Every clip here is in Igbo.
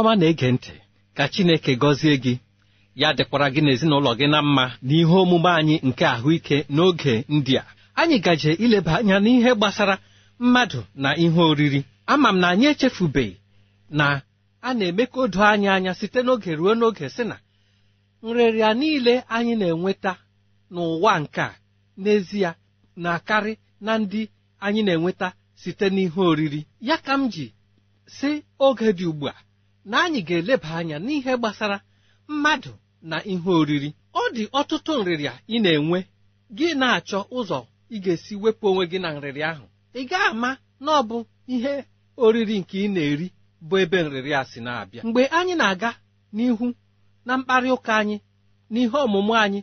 ọma na-ege ntị ka Chineke gọzie gị ya dịkwara gị n'ezinụlọ gị na mma n'ihe omume anyị nke ahụike n'oge ndị a anyị gaje ileba anya n'ihe gbasara mmadụ na ihe oriri ama m na anyị echefubeghị na a na-eme ka anyị anya site n'oge ruo n'oge sị na nrịrịa niile anyị na-enweta n'ụwa nke a n'ezie na-akarị na ndị anyị na-enweta site n'ihe oriri ya ka m ji si oge dị ugbu a na anyị ga-eleba anya n'ihe gbasara mmadụ na ihe oriri ọ dị ọtụtụ nrịrịa ị na-enwe gị na-achọ ụzọ ị ga-esi wepụ onwe gị na nrịrịa ahụ ị ga-ama na ọ bụ ihe oriri nke ị na-eri bụ ebe nrịrịa si na-abịa mgbe anyị na-aga n'ihu na mkparị ụka anyị na ihe ọmụmụ anyị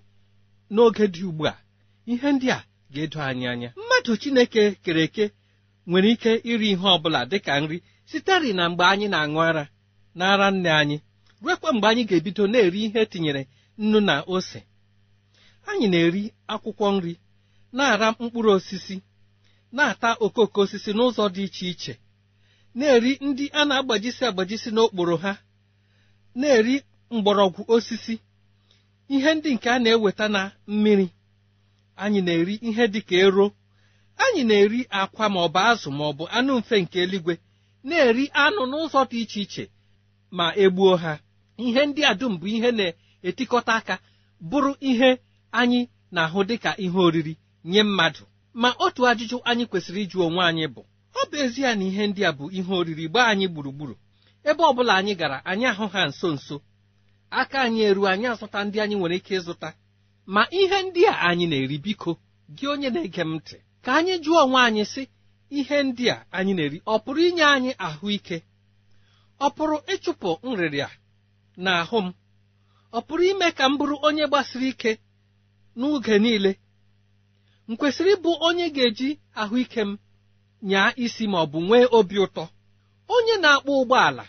n'oge dị ugbu a ihe ndị a ga-edo anyị anya mmadụ Chineke kere eke nwere ike iri ihe ọ bụla dị ka nri sitere na mgbe anyị na-aṅụ ara n'ara nne anyị ruekwa mgbe anyị ga-ebido na-eri ihe etinyere nnu na ose anyị na-eri akwụkwọ nri na-ara mkpụrụ osisi na-ata okooko osisi n'ụzọ dị iche iche na-eri ndị a na-agbajisi agbajisi n'okporo ha na-eri mgbọrọgwụ osisi ihe ndị nke a na-eweta na mmiri anyị na-eri ihe dị ka ero anyị na-eri akwa ma ọ bụ azụ ma anụ mfe nke eluigwe na-eri anụ n'ụzọ dị iche iche ma egbuo ha ihe ndị a dum bụ ihe na-etikọta aka bụrụ ihe anyị na-ahụ dịka ihe oriri nye mmadụ ma otu ajụjụ anyị kwesịrị ịjụ onwe anyị bụ ọ bụ ezie na ihe ndị a bụ ihe oriri gbaa anyị gburugburu ebe ọ bụla anyị gara anyị ahụ ha nso nso aka anyị eruo anyị azụta ndị anyị nwere ike ịzụta ma ihe ndị a anyị na-eri biko gị onye na-ege m ntị ka anyị jụọ onwe anyị sị ihe ndị a anyị na-eri ọ pụrụ inye anyị ahụike ọ pụrụ ịchụpụ nrịrịa n'ahụ m ọ pụrụ ime ka m bụrụ onye gbasiri ike n'oge niile m kwesịrị ịbụ onye ga-eji ahụike m nyaa isi ma ọ bụ nwee obi ụtọ onye na-akpọ ụgbọala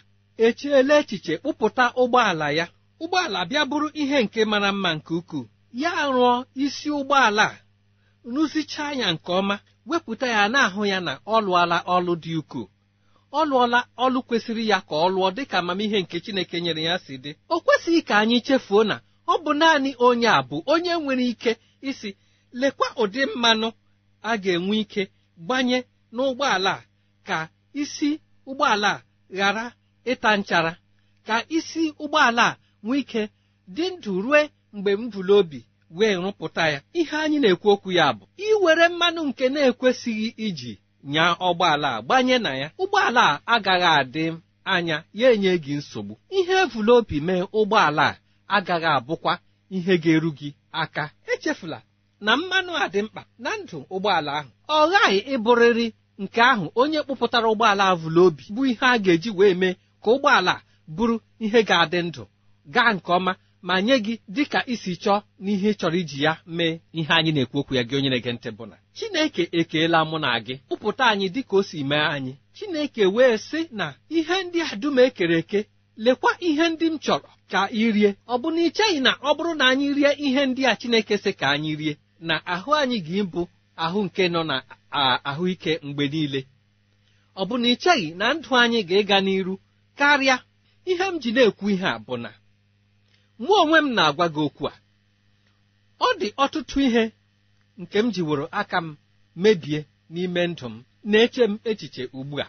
echiela echiche kpụpụta ụgbọala ya ụgbọala bịa bụrụ ihe nke mara mma nke ukwuu ya rụọ isi ụgbọala a rụzichaa ya nke ọma wepụta ya na-ahụ ya na ọ lụọla ọlụ dị ukwuu ọ lụọla ọlụ kwesịrị ya ka ọ lụọ dịka amamihe nke Chineke nyere ya si dị o kwesịghị ka anyị chefuo na ọ bụ naanị onye a bụ onye nwere ike isi lekwa ụdị mmanụ a ga-enwe ike gbanye n'ụgbọala a ka isi ụgbọala a ghara ịta nchara ka isi ụgbọala a nwee ike dị ndụ rue mgbe m obi wee rụpụta ya ihe anyị na-ekwu okwu ya bụ iwere mmanụ nke na-ekwesịghị iji nya ọgbọala a gbanye na ya ụgbọala a agaghị adị anya ya enye gị nsogbu ihe evula obi mee ụgbọala a agaghị abụkwa ihe ga-eru gị aka echefula na mmanụ a dị mkpa na ndụ ụgbọala ahụ ọ ghaghị ịbụrịrị nke ahụ onye kpụpụtara ụgbọala avụla obi bụ ihe a ga-eji wee mee ka ụgbọala bụrụ ihe ga-adị ndụ gaa nke ọma ma nye gị dịka isi chọọ n'ihe chọrọ iji ya mee ihe anyị na-ekwu okwu ya gị onye na-ege ntị bụ na Chineke ekeela mụ na gị kpụpụta anyị dịka o si mee anyị Chineke wee sị na ihe ndị a dum ekere eke lekwa ihe ndị m chọrọ ka ị rie ọ bụ na ị na ọ bụrụ na anyị rie ihe ndị a Chineke sị ka anyị rie na ahụ anyị ga-ịbụ ahụ nke nọ na ahụike mgbe niile ọ bụ na ị na ndụ anyị ga-ịga n'iru karịa ihe m ji na-ekwu ihe a bụ na mụ onwe m na-agwa gị okwu a ọ dị ọtụtụ ihe nke m jiworo aka m mebie n'ime ndụ m na-eche m echiche ugbu a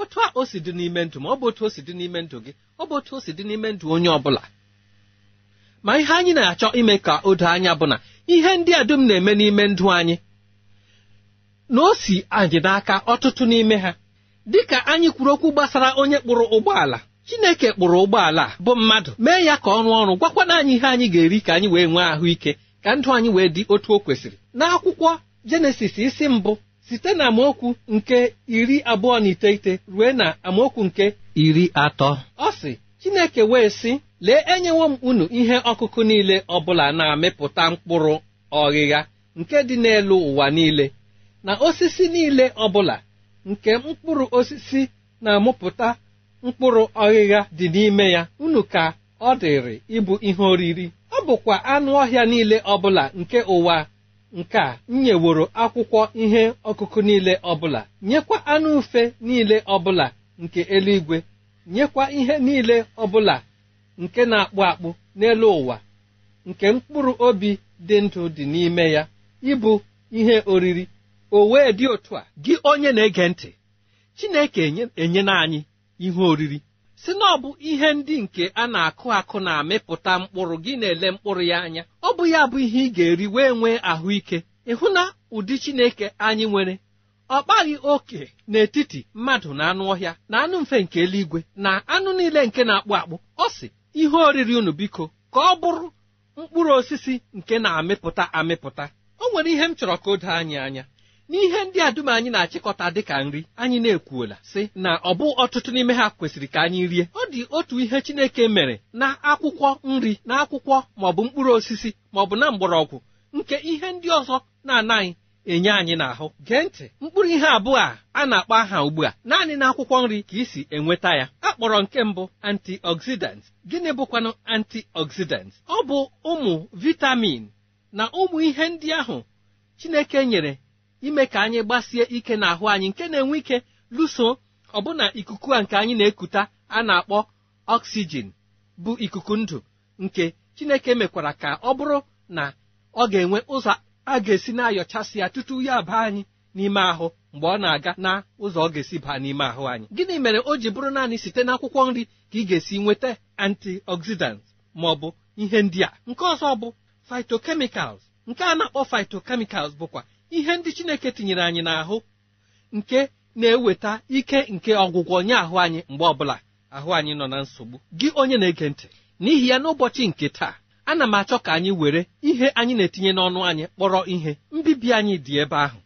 otu a o si dị n'ime ndụ m ọ bụ otu o si dị n'ime ndụ gị ọ bụ otu o si dị n'ime ndụ onye ọ bụla ma ihe anyị na-achọ ime ka o doo anya bụ na ihe ndị a dum na-eme n'ime ndụ anyị na o si anyị n'aka ọtụtụ n'ime ha dịka anyị kwuru okwu gbasara onye kpụrụ ụgbọala chineke kpụrụ ụgbọala bụ mmadụ mee ya ka ọ rụọ ọrụ gwakwana anyị ihe anyị ga-eri ka anyị wee nwee ahụike ka ndụ anyị wee dị otu o kwesịrị n'akwụkwọ jenesis isi mbụ site na amaokwu nke iri abụọ na iteghete ruo na amaokwu nke iri atọ ọ sị chineke wee sị lee enyewo m unu ihe ọkụkụ niile ọbụla na-amịpụta mkpụrụ ọghịgha nke dị n'elu ụwa niile na osisi niile ọbụla nke mkpụrụ osisi na-amụpụta mkpụrụ ọghịgha dị n'ime ya unu ka ọ dịrị ịbụ ihe oriri ọ bụkwa anụ ọhịa niile ọbụla nke ụwa nke a nyeworo akwụkwọ ihe ọkụkụ niile ọbụla nyekwa anụ ufe niile ọbụla nke eluigwe nyekwa ihe niile ọbụla nke na-akpụ akpụ n'elu ụwa nke mkpụrụ obi dị ndụ dị n'ime ya ịbụ ihe oriri o wee dị otu a gị onye na-ege ntị Chineke enyena anyị ihe oriri si na ọ bụ ihe ndị nke a na-akụ akụ na-amịpụta mkpụrụ gị na-ele mkpụrụ ya anya ọ bụ ya bụ ihe ị ga-eri wee nwee ahụike ịhụ na ụdị Chineke anyị nwere ọ kpaghị oke n'etiti mmadụ na anụ ọhịa na anụ mfe nke eluigwe na anụ niile nke na-akpụ akpụ ọ sị ihe oriri unu biko ka ọ bụrụ mkpụrụ osisi nke na-amịpụta amịpụta o nwere ihe m chọrọ ka o doo anyị anya n'ihe ndị a dum anyị na-achịkọta dịka nri anyị na-ekwuola sị na ọ bụ ọtụtụ n'ime ha kwesịrị ka anyị rie ọ dị otu ihe Chineke mere na akwụkwọ nri na akwụkwọ maọbụ mkpụrụ osisi maọbụ na mgbọrọgwụ nke ihe ndị ọzọ na-anaghị enye anyị n'ahụ gee ntị mkpụrụ ihe abụọ a a na-akpọ aha ugbu a naanị na akwụkwọ nri ka isi enweta ya a kpọrọ nke mbụ antioxidant gịnị bụkwanụ antioxidant ọ bụ ụmụ vitamin na ụmụ ihe ndị ahụ Chineke nyere ime ka anyị gbasie ike n'ahụ anyị nke na-enwe ike lụso ọbụna ikuku a nke anyị na-ekuta a na-akpọ oxygen bụ ikuku ndụ nke Chineke mekwara ka ọ bụrụ na ọ ga-enwe ụzọ a ga-esi na-ayọchasị ya tutu ya baa anyị n'ime ahụ mgbe ọ na-aga na ụzọ ọ ga-esi baa n'ime ahụ anyị gịnị mere o ji bụrụ naanị site n'akwụkwọ nri ka ị ga-esi nweta antioxidant ma ọ bụ ihe ndị a nke ọzọ bụ fitokemicals nke a na-akpọ phytochemicals bụkwa ihe ndị chineke tinyere anyị n'ahụ nke na-eweta ike nke ọgwụgwọ nye ahụ anyị mgbe ọbụla ahụ anyị nọ na nsogbu gị onye na-ege ntị n'ihi ya n'ụbọchị nke taa ana m achọ ka anyị were ihe anyị na-etinye n'ọnụ anyị kpọrọ ihe mbibi anyị dị ebe ahụ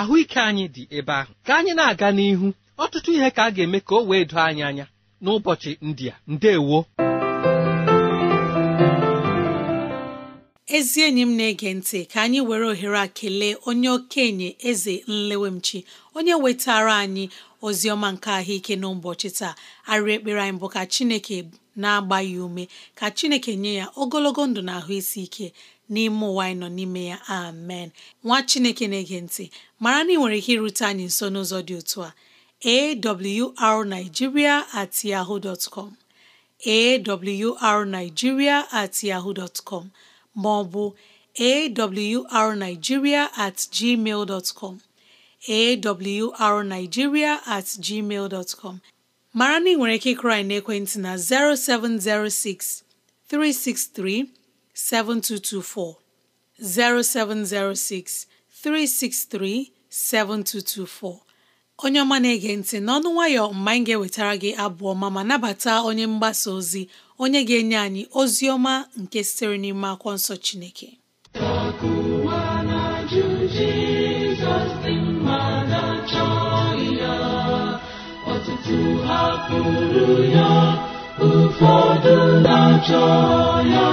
ahụike anyị dị ebe ahụ ka anyị na-aga n'ihu ọtụtụ ihe ka a ga-eme ka o wee doo anyị anya n'ụbọchị ndị a ndewo ezi enyi m na-ege ntị ka anyị were ohere a kelee onye okenye eze nlewemchi onye wetara anyị ozi ọma nke ahụike n'ụbọchị taa arịa ekpere anyị bụ ka chineke na-agba ya ume ka chineke nye ya ogologo ndụ na ahụ isi ike n'ime ụwa anyị nọ n'ime ya amen nwa chineke na-ege ntị mara na ị nwere ike irute anyị nso n'ụzọ dị otu a awrnigeria at at ma ọ bụ awrnigeria at gmail dot com awrnigeria at gmail dot com mara na nwere ike ịkụrụ anyị n'ekwentị na 0706 363 7224 0706 363 7224 onye ọma na-ege ntị n'ọnụ nwayọ mgbe anyị ga-ewetara gị abụọ ọma ma nabata onye mgbasa ozi onye ga-enye anyị ozi ọma nke sitere n'ime akwọ nsọ Chineke hapụrụ ya ụfọdụ na-achọ ya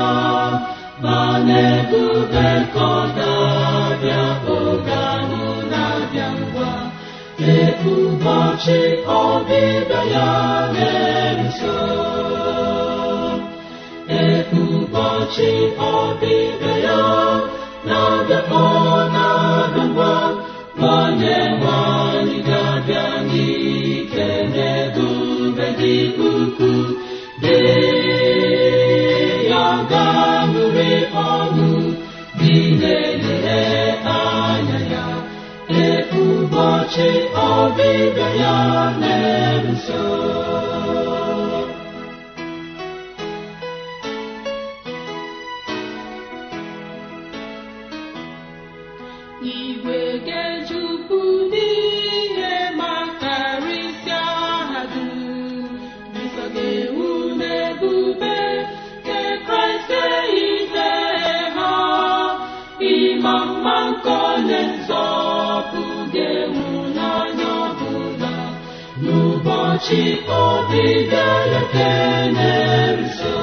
ma na-ebube ka ọ na-abịa oge ahụ abịa ngwa ee ụbọchị ọbịbịa ya na-eso ụbọchị ọbịbịa ya na-abịakpọ na-abịakwa onye nwanyị ga-abịa n'ike n'ebube dị ukwuu dị ya ga-anụrị ọnụ dị na-ele anya ya ụbọchị ọbịbịa ya na Ọchị ọbịbịa ya keneruso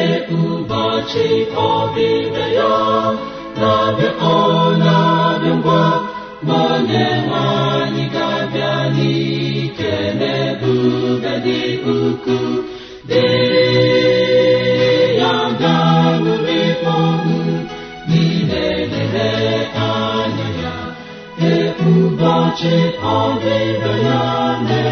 e ụbọchị ya na-abịa ọ na-abịa ngwa ma onye nwanyị ga-abịa n'ike n'ebube dị ọchị ọbịbịa ya na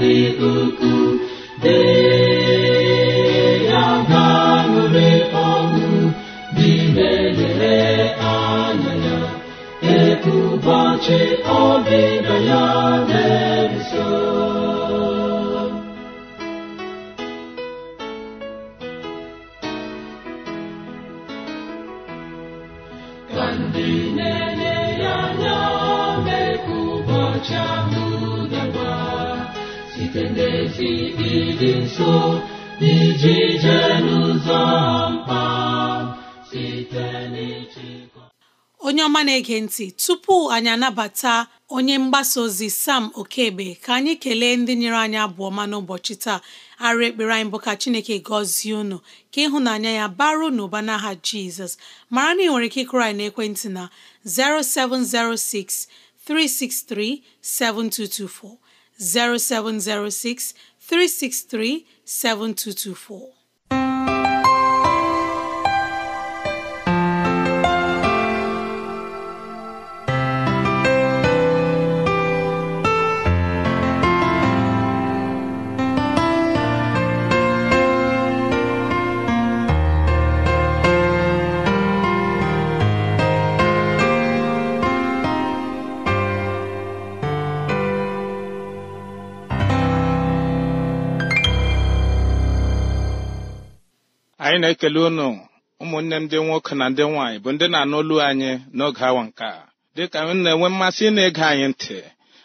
dị ukwuu dee ya ga-aṅụrị ọṅụ dị na-elere anya ya ya na-eso ndị onye ọma na-ege ntị tupu anyị anabata onye mgbasa ozi Sam Okebe ka anyị kelee ndị nyere anyị abụ ọma n'ụbọchị taa arụ ekpere anyị bụ ka Chineke gọzie unu ka ịhụnanya ya baru n'ụba n'aha Jizọs mara na ị nwere ike ịkụrụ anyị n'ekwentị na 0706 363 7224 0706 363 7224. anyị na-ekele unu ụmụnne m ndị nwoke na ndị nwaanyị bụ ndị na-anụlu anyị n'oge awa nke a dịka anyị na-enwe mmasị ị na-ege anyị ntị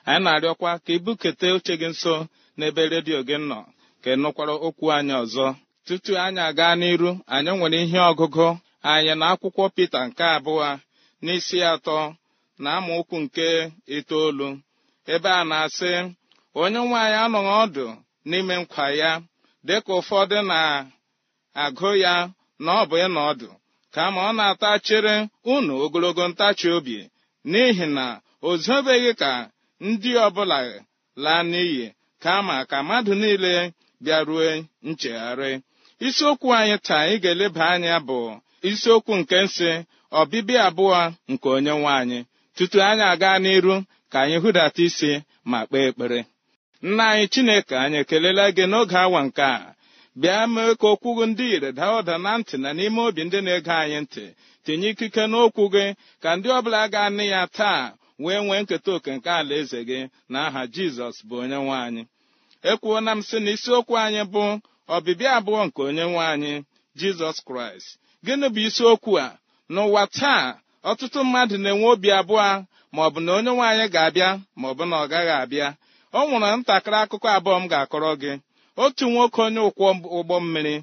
anyị na-arịọkwa ka ibukete oche gị nso n'ebe redio gị nọ ka ị nụkwara okwu anyị ọzọ tutu anyị aga n'iru anyị nwere ihe ọgụgụ anyị na akwụkwọ Pita nke abụọ n'isi atọ na amaokwu nke itoolu ebe a na-asị onye nwaanyị anọghị ọdụ n'ime nkwa ya dịka ụfọdụ na agụ ya na ọ bụ ịnọ ọdụ kama ọ na-atachere ata unu ogologo ntachi obi n'ihi na o zobeghị ka ndị ọbụla laa n'iyi kama ka mmadụ niile bịarue nchegharị isiokwu anyị taa ị ga-eleba anya bụ isiokwu nke nsị ọbịbịa abụọ nke onye nwe anyị tutu anyị aga n'iru ka anyị hụdata isi ma kpee ekpere nna anyị chineke anyị ekelela gị n'oge awa nke a bịa mee ka okwu gị ndị ire daa ụda na ntị na n'ime obi ndị na-ege anyị ntị tinye ikike n'okwu gị ka ndị ọbụla ga-anị ya taa wee nwee nketa oke nke alaeze gị na aha jizọs bụ onye nwe anyị ekwuona m sị na isiokwu anyị bụ ọbịbịa abụọ nke onye nwe anyị jizọs kraịst gịnị bụ isiokwu a n'ụwa taa ọtụtụ mmadụ na-enwe obi abụọ ma ọ bụ na onye nwe anyị ga-abịa ma ọ bụ na ọ gaghị abịa ọ nwụrụ ntakịrị akụkọ abụọ m ga-akọrọ gị otu nwoke onye ụkwọ ụgbọ mmiri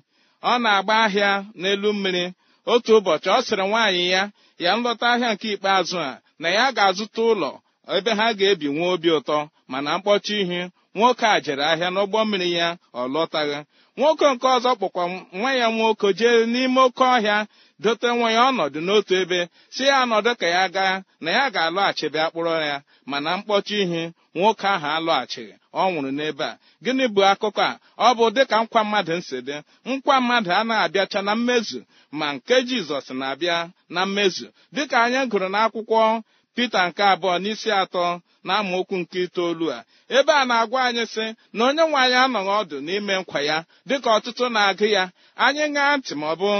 ọ na-agba ahịa n'elu mmiri otu ụbọchị ọ sịrị nwaanyị ya ya nlọta ahịa nke ikpeazụ a na ya ga-azụta ụlọ ebe ha ga-ebi nwa obi ụtọ mana mkpọchi ihe nwoke a jere ahịa n'ụgbọ mmiri ya ọ lọtaghị nwoke nke ọzọ kpụkwa nwa ya nwoke jee n'ime oke ọhịa dote nwa ya ọnọdụ n'otu ebe si ya anọdụ ka ya gaa na ya ga-alọghachi bịa kpụrọ ya mana mkpọchi ihe nwoke ahụ alọghachighị ọ nwụrụ n'ebe a gịnị bụ akụkọ a ọ bụ dịka nkwa mmadụ nsi dị nkwa mmadụ anaghị abịacha na mmezu ma nke jizọs na-abịa na mmezu dịka anyị gụrụ n'akwụkwọ pita nke abụọ n'isi atọ na amaokwu nke itoolu a ebe a na-agwa anyị sị na onye nwe anyị anọghị ọdụ n'ime nkwa ya dịka ọtụtụ na-agụ ya anyị ṅaa ntị ma ọ bụ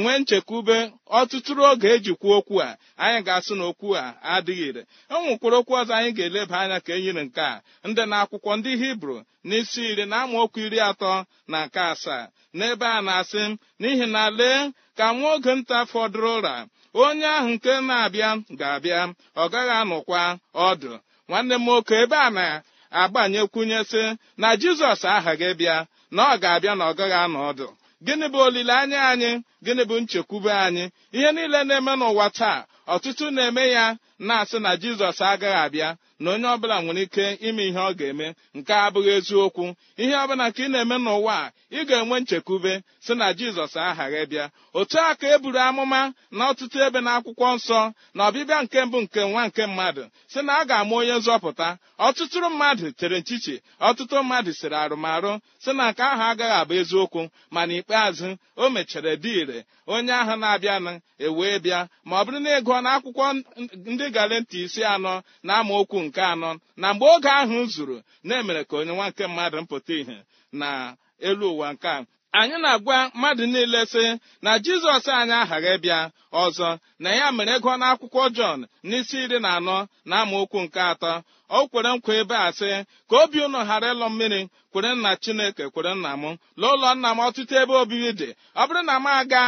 nwee nchekwube ọtụtụrụ oge e kwuo okwu a anyị ga-asụ na okwu a adịghị ire e okwu ọzọ anyị ga-eleba anya ka e nke a ndị na akwụkwọ ndị hibru n'isi iri na amaokwu iri atọ na nke asaa n'ebe a na-asị n'ihi na lee ka nwa oge nta fọdụrụ ụra onye ahụ nke na-abịa ga-abịa ọ gaghị anụkwa ọdụ nwanne m nwoke ebe a na-agbanyekwunyesị na jizọs ahaghị bịa na ọ ga-abịa na ọ anụ ọdụ gịnị bụ olileanya anyị gịnị bụ nchekwube anyị ihe niile na-eme n'ụwa taa ọtụtụ na-eme ya na-asị na jizọs agaghị abịa na onye ọbụla nwere ike ime ihe ọ ga-eme nke abụghị eziokwu ihe ọbụla nke ị na-eme n'ụwa a ị ga-enwe nchekwube si na jizọs aghaghị bịa otu a ka e buru amụma na ọtụtụ ebe na akwụkwọ nsọ na ọbịbịa nke mbụ nke nwa nke mmadụ si na a ga-amụ onye nzọpụta ọtụtụ mmadụ chere nchichi ọtụtụ mmadụ siri arụmarụ si na nke ahụ agaghị abụ eziokwu ma ikpeazụ o mechara dị ire onye ahụ na-abịanụ ewee bịa ma ọ bụrụ na ịgụọ na ndị ga-ele ntị isi anọ na amaokwu nke anọ na mgbe oge ahụ zuru na-emere ka onye nwa nke mmadụ mpụta ìhè na elu ụwa nke a anyị na-agwa mmadụ niile sị na jizọs anyị aghaghị ịbịa ọzọ na ya mere ego n'akwụkwọ jọn n'isi iri na anọ na amaokwu nke atọ o kwere nkwa ebe a sị ka obi unu ghara ịlọ mmiri kwere nna chineke kwere nna m lee ụlọ nna m ọtụtụ ebe obibi dị ọ bụrụ na m aga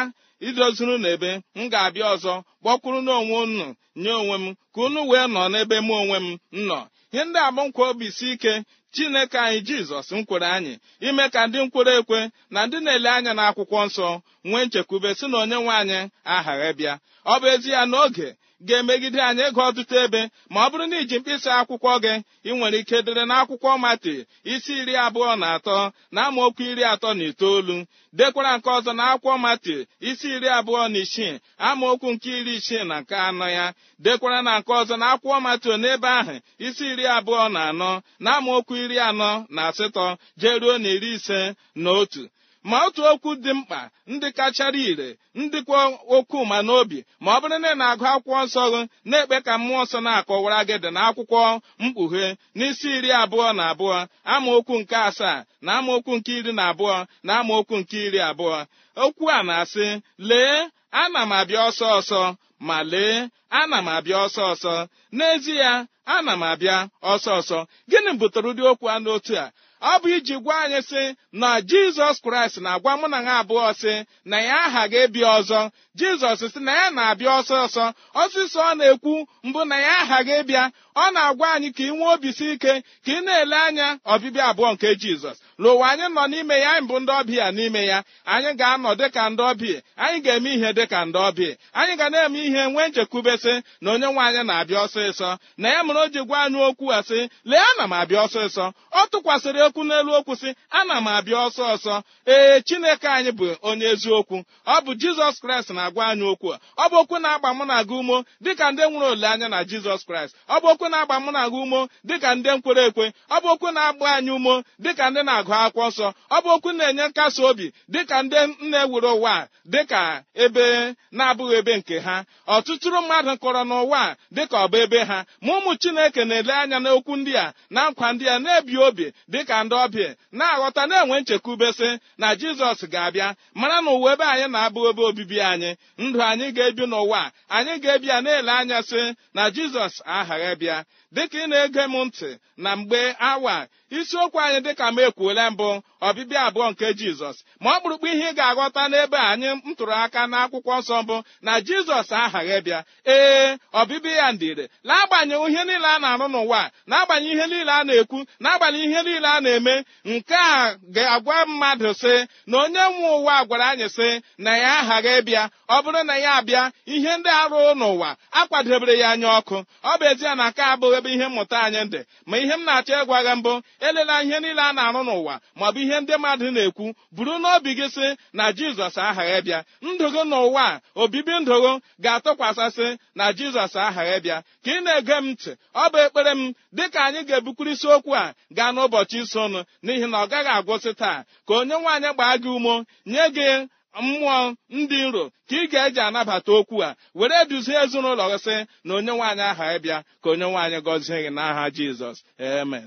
idozuru n'ebe m ga-abịa ọzọ kpọkwuru n'onwe unu nye onwe m ka unu wee nọ n'ebe m onwe m nọ ihe ndị a bụ nkwa obi si ike chineke anyị jizọs nkwere anyị ime ka ndị nkwere ekwe na ndị na-ele anya n'akwụkwọ nsọ nwee nchekwube si na onye nwe anyị aha bịa ọ bụ ezi ya n'oge ga-emegide anyị ego ọtụtụ ebe ma ọ bụrụ na iji mkpịsị akwụkwọ gị ị nwere ike dere akwụkwọ mati isi iri abụọ na atọ na amaokwu iri atọ na itoolu dekwara nke ọzọ na akwụkwọ mati isi iri abụọ na isii amaokwu nke iri isii na nke anọ ya dekwara na nke ọzọ na akwụkwọ mati n'ebe ahụ isi iri abụọ na anọ na amaokwu iri anọ na asatọ jeruo na iri ise na otu ma otu okwu dị mkpa ndị kachara ire ndị kwa okwu ma n'obi ma ọ bụrụ na ị na-agụ akwụkwọ nsọ gị na-ekpe ka mmụọ nsọ na-akọwara gị dị na akwụkwọ mkpughe n'isi iri abụọ na abụọ amaokwu nke asaa na amaokwu nke iri na abụọ na amaokwu nke iri abụọ okwu a na-asị lee ana m abịa ọsọ ọsọ ma lee ana m abịa ọsọ ọsọ n'ezie ana m abịa ọsọ ọsọ gịnị butere ụdị okwu a n'otu a ọ bụ iji gwa anyị sị na jizọs kraịst na-agwa mụ na ha abụọ sị na ya aha ga-ebi ọzọ jizọs sị na ya na-abịa ọsọ ọsọ ọsịsọ ọ na-ekwu mbụ na ya aha ga ọ na-agwa anyị ka ị nwee obisi ike ka ị na-ele anya ọbịbịa abụọ nke jizọs n'ụwa anyị nọ n'ime ya anyị bụ ndị ọbịa n'ime ya anyị ga-anọ dịka ndị ọbịa anyị ga-eme ihe dịka ndị ọbịa anyị ga na-eme ihe nwee nchekwubesị na onye nwe anyị na-abịa ọsịsọ na ya mere o ji gwa anyị okwu a sị lee ana m abịa ọsịsọ ọ tụkwasịrị okwu n'elu okwu sị ana m abịa ọsọ ọsọ ee chineke anyị bụ onye eziokwu ọ bụ jizọs kraịst na-agwa anyị okwu a ọ bụ okwu na-agba mụ na aga umo dịka ndị nwere olileanya na jizọs kraịst ọ bụ okwu na-agba mụ na umo dịka ndị nkwere ekwe ọ bụ okwu na-agba anyị umo dịka ndị na na-agụ akwụkwọ nsọ ọ bụ okwu na-enye nkasi obi dịka ndị nna ewere ụwa dịka ebe na-abụghị ebe nke ha ọtụtụrụ mmadụ kọrọ n'ụwa dịka ọ ebe ha ma ụmụ Chineke na-ele anya n'okwu ndị a na nkwa ndị a na-ebi obi dịka ndị ọbịa na-aghọta na-enwe nchekwubesị na Jizọs ga-abịa mara na ụwa ebe anyị na-abụghị ebe obibi anyị ndụ anyị ga-ebi n'ụwa anyị ga-ebi na-ele anya sị na Jizọs aghaghị bịa dịka ị na-ege m ntị na mgbe awa isiokwu anyị dịka m ekwuola ekele mbụ ọbịbịa abụọ nke jizọs ma ọ bụrụkwa ihe ị ga-aghọta n'ebe anyị m tụrụ aka n'akwụkwọ nsọ mbụ na jizọs aghaghị bịa ee ọbịbịa ya ndịre na-agbanyeghị ihe niile a na-arụ n'ụwa na-agbanyeghị ihe niile a na-ekwu na-agbanyeghị ihe niile a na-eme nke a ga-agwa mmadụ sị na onye nwe ụwa gwara anyị sị na ya aghaghị bịa ọ bụrụ na ya abịa ihe ndị arụ n'ụwa akwadebere ya anya ọkụ ọ bụ ezie na aka abụghị ebe ihe mmụta anyị dị ma ihe m na-achọ ịgwa gị mbụ elela ihe niile a na-arụ n'ụwa ụwa maọbụ ihe ndị mmadụ na-ekwu buru n'obi gị sị na jizọs ahaghị bịa ndogo n'ụwa a obibi ndogo ga-atụkwasịsị na jizọs ahaghị bịa ka ị na-ege m ntị ọ bụ ekpere m dịka anyị ga-ebukwuru isiokwu a gaa n'ụbọchị isonụ n'ihi na ọ gaghị agwụsị taa ka onye nwaanyị gbaa gị umo nye gị mmụọ ndị nro ka ị ga-eji anabata okwu a were duzie ezinụlọ gị sị na onye nwaanyị aghaghị bịa ka onye nwaanyị gọzie gị n'aha jizọs amen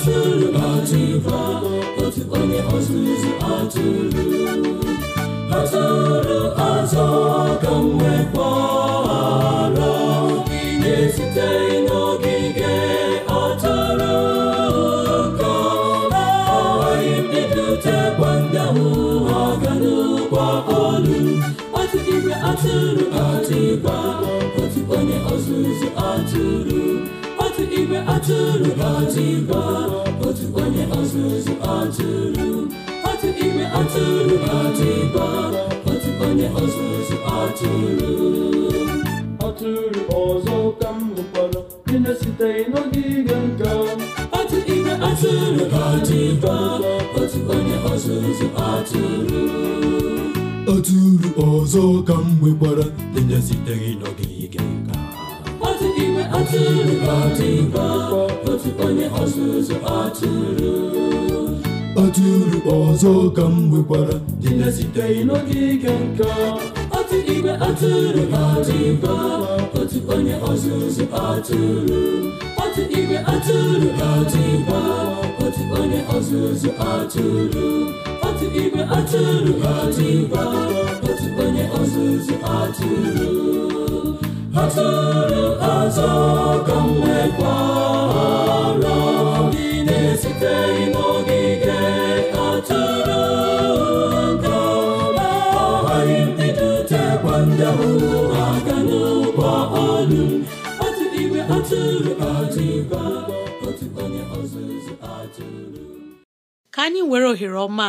atụrụ atụkwa otu onye ọzụzụ atụrụ azọrọ azọ ka m nwekwara na-esite n'ogige atụrụ ka agaghị m ibitekwa ndị ahụ aga n'ụkwa olu atụ igwe atụrụ atụkwa otu onye ọzụzụ atụrụ igwe atụrụ otu igwe otu onye ọzụzụ atụrụ otu igwe atụrụ otu otu onye ọzụzụ atụrụ ọzọ ụka m nụkwara na nka otu igwe atụrụ otu otu onye ọzụzụ ọzọ ka m nwekwara na-esiteghị n'ogige atụrụ ọdịgba otu onye ọzụzụ atụrụ atụrụ ọzọ ka m nwekwara dị na-esiteghị n'ogige nke otu igwe atụrụ ọdịgba otu onye ọzụzụ atụrụ otu igwe atụrụ ọdịgba otu onye ọzụzụ atụrụ otu igwe atụrụ ọdịgba otu onye ọzụzụ atụrụ atụrụ ọzọ ka m nwekwara gị na-esiteghị n'ogige atụrụ ka agaghị m edutekwa ndị ahụ aga n'ụgbọ ọlụ otu igwe atụrụ adịkwa otu onye ọzụzụ atụrụ ka anyị were ohere ọma